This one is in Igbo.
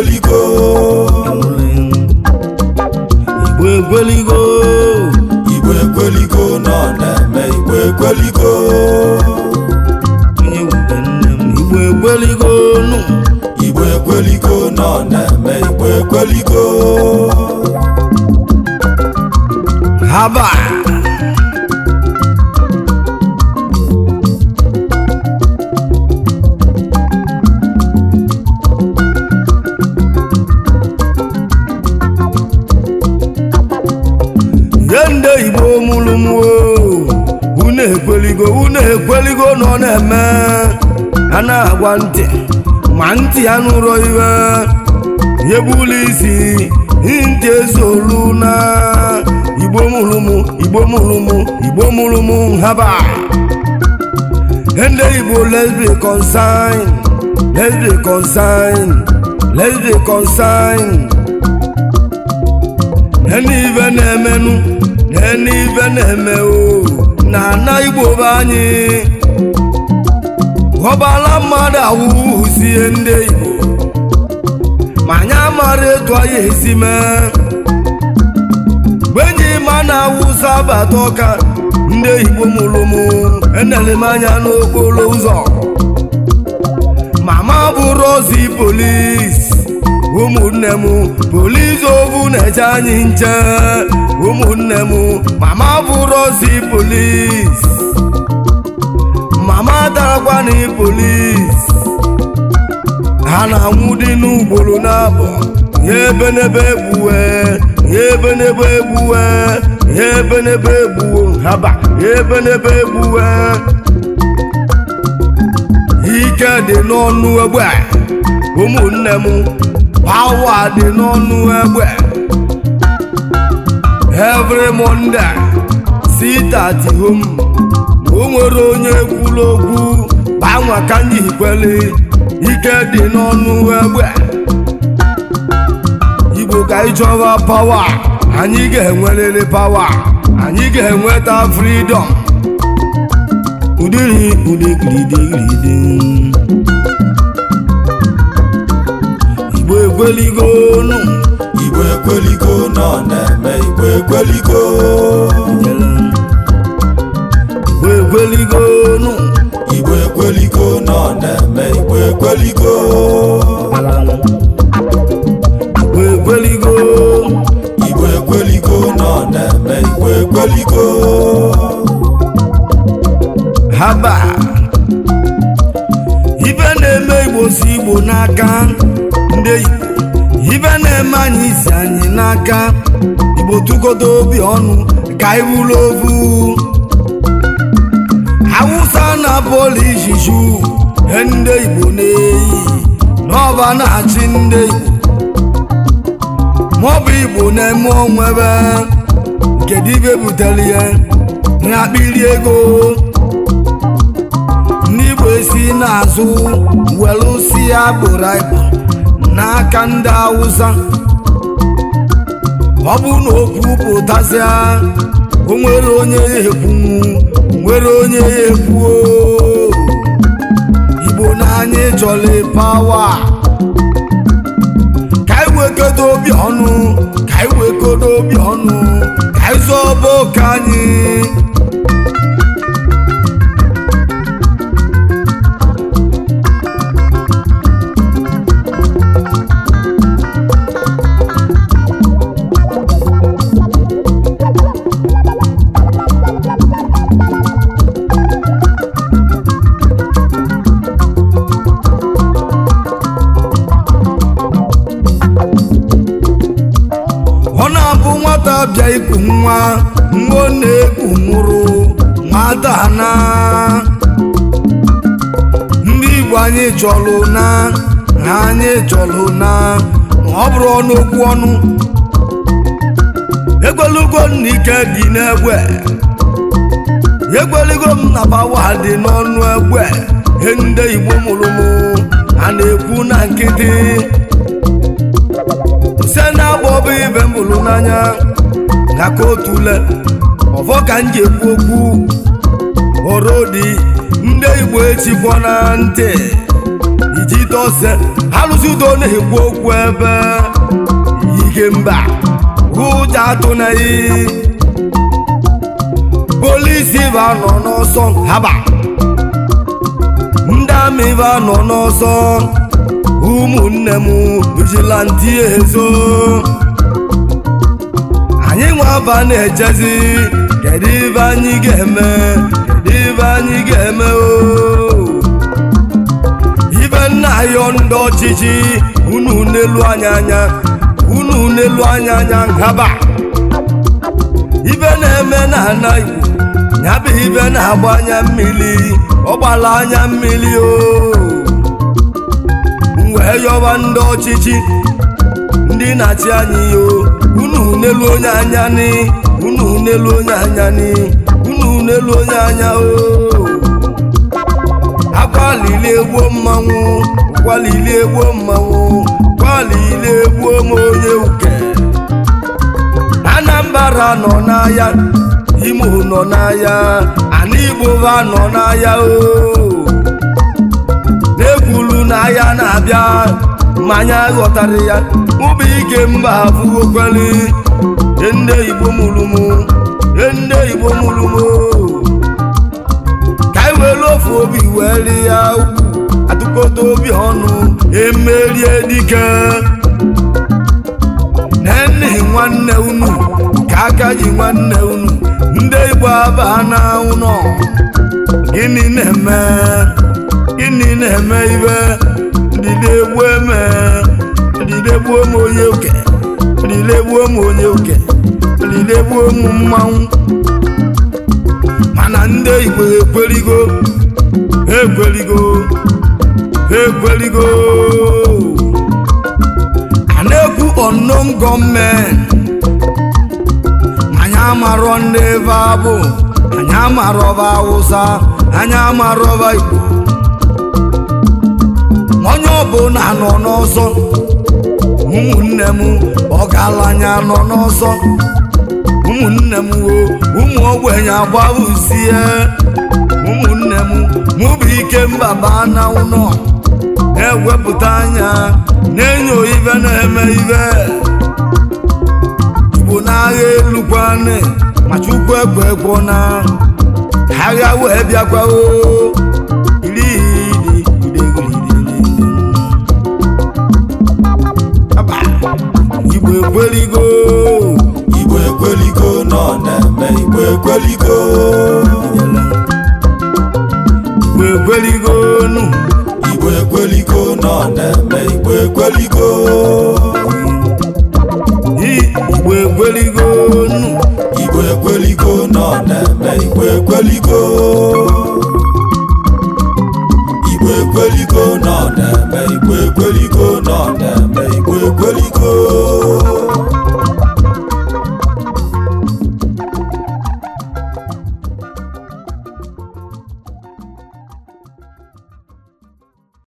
egweligo igwe egweligo igwe egweligo nọ na-eme igwe egweligo igwe egweligo igwe egweligo nọ na-eme igwe egweligo haba nweligo nọ na-eme a na-agwa ntị ma ntị ya nụrụ iwe nyebula isi ntị ezolu na igbo mụrụmụ igbo mụrụmụ igbo mụrụmụ nhaba ndị igbo lesbi be lesbi let's lesbi concerned let's be ndị ibe na-emenụ na ndị ibe na-eme o na igbo be anyị ghọbala mmadụ sie ndị igbo ma anyị amara etu anyị esi mee mgbe enyi ma na awụsa abata ọka ndị igbo mụrụ m enere m anya n'okporo ụzọ mama bụ ozi polis ụmụnne m ovu na-eje anyị nche ụmụnne m mama bụrụ ozi polis mama darakwana polis ha na-anwụ dị n'ugboro n'abọ ya ebe n'ebe egbuwe ya ebe n'ebe egbuwe ya ebe n'ebe egbuwo haba ya ebe egbuwe ike dị n'ọnụ egbe ụmụnne m Power dị n'ọnụ egbe every Monday sit home o nwere onye kwuru okwu banwa ka anyị ike dị n'ọnụ egbe Igbo ka ịchọwa pawa anyị ga-enwerịrị pawa anyị ga-enweta freedom udiri udigidigidigidi igbo ekweligo nụ igbo igwe nọ na-eme igbo igbo nụ igbo nọ na-eme igbo ekweligo igbo ekweligo igbo na-eme ibe na-eme igbo si igbo n'aka ndị ibe na-eme anyị isi anyị n'aka igbo tụgodo obi ọnụ ka anyị ovu awụsa na bọọlụ ijiju e ndị igbo na-eyi n'ọba na-achị ndị igbo maọbụ igbo na-eme onwe ebe kedu ibe butere ya na akpịrị ego ndị igbo esi si agbụrụ gboro n'aka ndị awụsa ọ bụ na okwu pụtasịa o nwere onye efu nwere onye ya igbo n'anya ịchọla pawa ka ị obi ọnụ ka ị obi ọnụ ka anyị zọba oke anyị ọma nwa na-ekpu nwụrụ madana ndị Igbo anyị chọlụ na na anyị chọlụ na ọ bụrụ ọnụokwu ọnụ egwelugo m dị n'egwe egwelugo m na bawa dị n'ọnụ egwe ihe ndị Igbo mụrụ m a na-ekwu na nkịtị se na-abụ ọbụ ibe bụrụ n'anya ka otule ọfọ ka m ji ekwu okwu orodi ndị igbo etigbo na ntị iji dose alụsị udo na-ekwu okwu ebe ike mba ụja atụnaghị polisi va nọ n'ọsọ haba ndị amị ba nọ n'ọsọ ụmụnne m vigilanti ezo anyị nwe aba na echezi kedu ibe anyị ga-eme kedu ibe anyị ga-eme ibe nna ayọ ndị ọchịchị unu n'elu anya anya unu n'elu anya anya ngaba ibe na-eme na anaghị ya bụ ibe na-agba anya mmiri ọ anya mmiri o wee yọba ndị ọchịchị ndị na-achị anyị o unu n'elu onye anya ni unu n'elu onye anya ni unu n'elu onye anya o akwalili egbuo mmanwụ kwalili egbuo mmanwụ kwalili egbuo m onye uke Anambra nọ n'ahịa Imo nọ n'ahịa ana Igbo ha nọ n'ahịa o n'egwulu n'ahịa na-abịa ma anyị ya ụbụ ike mba abụghọkwali ndị igbo mụrụ mụ ndị igbo mụrụ ka anyị were ofu obi wee ri ya atụkọta obi ọnụ emerie dike nennehi nwanne unu ka aka ji nwanne unu ndị igbo abaa na ụnọ gịnị na-eme gịnị na-eme ibe ndị na-egbu eme gbuo m onye oke lile gbuo m onye oke lile gbuo m mmanwụ mana ndị igbo ekweligo ekweligo ekweligo a na-ekwu unknown anyị ndị ebe abụ anyị amarọba awụsa anyị igbo onye na nọ n'ọzọ ụmụnne m ọ anya nọ n'ọzọ ụmụnne m woo ụmụ ogbenye agbawuzie ụmụnne m mụ bụ ikemba baa na anọ na-ewepụta anya na-enyo ibe na-eme ibe igbo n'agha elu kwanị ma chukwu ekwe ekwo na agha wee bịakwaoo igbo ekweligo igbo ekweligo nọ na-eme igwe nụ nọ na-eme igbo ekweligo igwe nụ nọ na-eme igwe nọ na-eme nọ na-eme egweliko